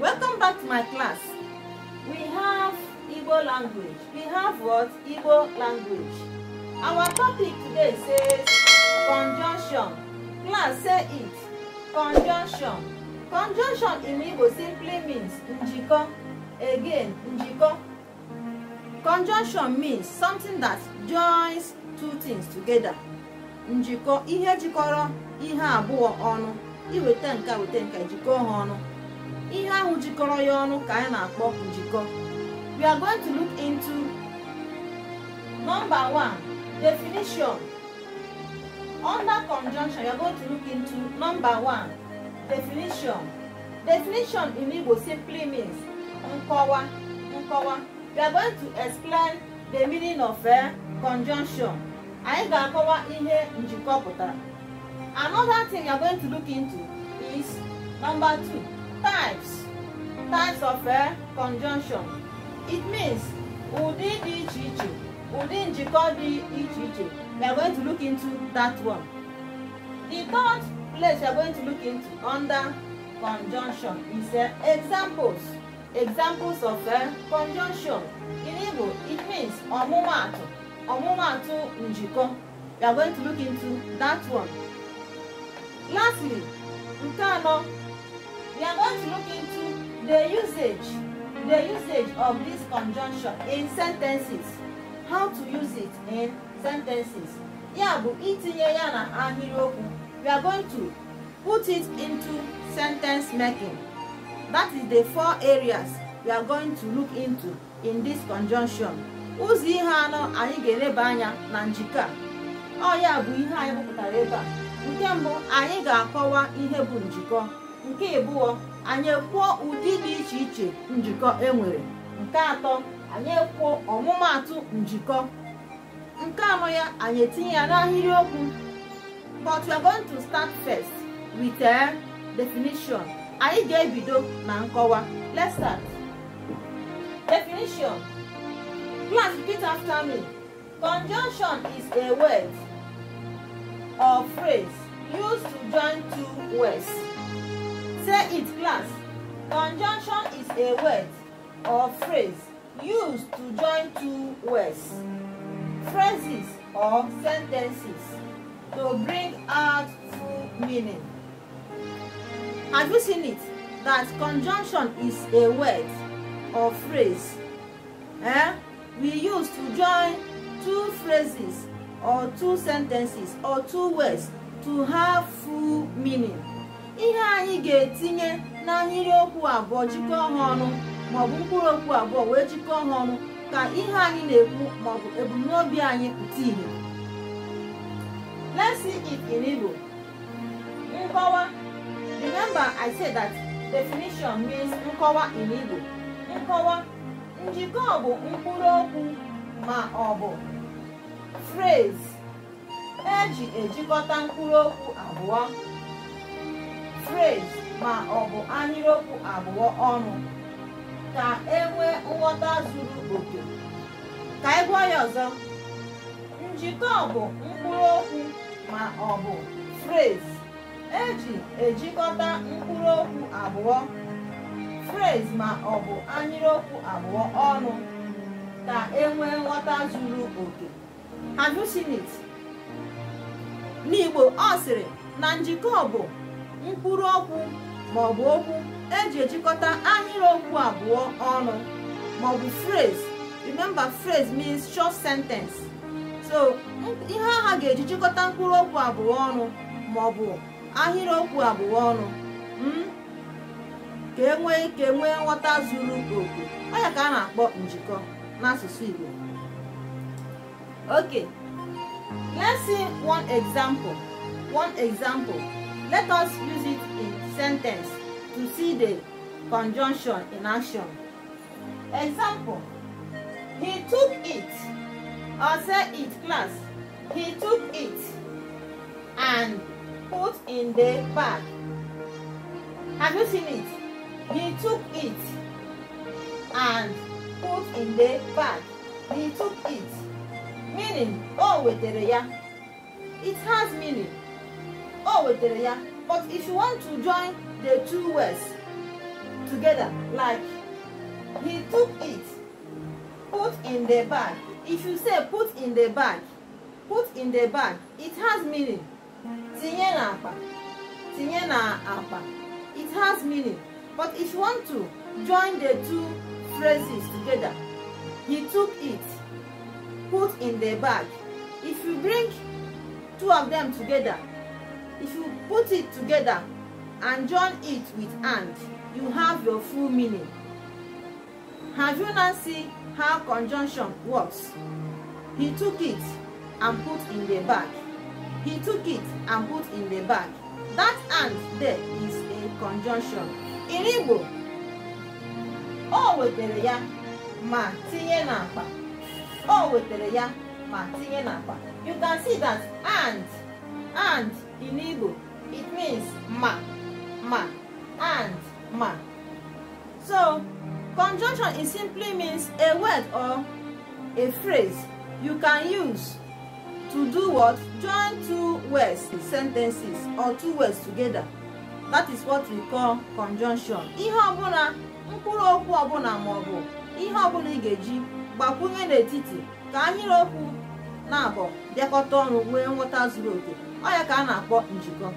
Welcome back to my class. We have Igbo language. We have what? Igbo language. Our topic today says conjunction. Class, say it. Conjunction. Conjunction in Igbo simply means njiko. Again, njiko. Conjunction means something that joins two things together. Njiko, ihe jikọrọ ihe abụọ ọnụ. Iweta nke weta nke jikọọ ha ihe ahụ jikọrọ ya ọnụ ka anyị na-akpọ njikọ we are going to look into number one definition under conjunction we are going to look into number one definition definition in Igbo simply means nkọwa nkọwa we are going to explain the meaning of a eh, conjunction anyị ga-akọwa ihe njikọ pụtara another thing we are going to look into is number two Types. Types of a eh, conjunction. It means ụdị dị iche iche, ụdị njikọ dị iche iche. We are going to look into that one. The third place we are going to look into under conjunction is uh, examples. Examples of a eh, conjunction. In Igbo, it means ọmụmaatụ, ọmụmaatụ njikọ. We are going to look into that one. Lastly, nke anọ We are going to look into the usage, the usage of this conjunction in sentences. How to use it in sentences. Ya bụ itinye ya na ahịrịokwu. We are going to put it into sentence making. That is the four areas we are going to look into in this conjunction. Ụzọ ihe anọ anyị ga-eleba anya na njikọ a. Ọ ya bụ ihe anyị bụpụtara ebe a. Nke mbụ anyị ga-akọwa ihe bụ njikọ. nke ịbụọ anyị kwuo ụdị dị iche iche njikọ enwere nke atọ anyị ekwuo ọmụmaatụ njikọ nke anọ ya anyị etinye ya n'ahịrịokwu but we are going to start first with a eh, definition anyị ga-ebido na nkọwa let's start definition please repeat after me conjunction is a word or phrase used to join two words After its glance, conjunction is a word or phrase used to join two words, phrases or sentences to bring out full meaning. Have you seen it? That conjunction is a word or phrase eh, we use to join two phrases or two sentences or two words to have full meaning. ihe anyị ga-etinye na okwu abụọ jikọọ ha ọnụ maọbụ mkpụrụ okwu abụọ wee jikọọ ha ọnụ ka ihe anyị na-ekwu maọbụ ebumnobi anyị pụta ihe let's see it nkọwa remember I said that definition means nkọwa in Igbo nkọwa njikọ bụ mkpụrụ okwu ma ọ bụ phrase eji ejikọta mkpụrụ okwu abụọ phrase ma ọ bụ anyịrịokwu abụọ ọnụ ka e nwee nghọta zuru oke ka ị e gụọ ya ọzọ njikọ bụ mkpụrụ okwu ma ọ bụ phrase eji ejikọta mkpụrụ okwu abụọ frez ma ọ bụ anyịrịokwu abụọ ọnụ ka e nwee nghọta zuru oke have n'Igbo ọ sịrị na njikọ bụ mkpụrụ okwu ma ọ bụ okwu eji ejikọta ahịrịokwu abụọ ọnụ ma ọ bụ phrase remember phrase means short sentence so ihe aha ga-eji mkpụrụ okwu abụọ ọnụ ma ọ maọbụ ahịrịokwu abụọ ọnụ hmm? ka enwe ike ka e nwee nghọta zuru oke ọ ka a na-akpọ njikọ n'asụsụ Igbo okay let's see one example one example Let us use it in sentence to see the conjunction in action. Example, he took it, or say it class, he took it and put in the bag. Have you seen it? He took it and put in the bag. He took it. Meaning, oh, wetere ya. It has meaning o wetere ya but if you want to join the two words together like he took it put in the bag if you say put in the bag put in the bag it has meaning tinye na akpa tinye na akpa it has meaning but if you want to join the two phrases together he took it put in the bag if you bring two of them together if you put it together and join it with and you have your full meaning have you now see how conjunction works he took it and put in the bag he took it and put in the bag that and there is a conjunction in igbo o wetere ya ma tinye n'akpa o wetere ya ma tinye n'akpa you can see that and and in Igbo, it means ma, ma, and ma. So, conjunction is simply means a word or a phrase you can use to do what? Join two words, sentences, or two words together. That is what we call conjunction. Ihe ọbụla, mkpụrụ okwu ọbụla ma ọ bụ ihe ọbụla ị ga-eji gbakwunye n'etiti ka ahịrịokwu na-abọ bịakọta ọrụ nwee nghọta zuru oke ọ ya ka a na-akpọ njikọ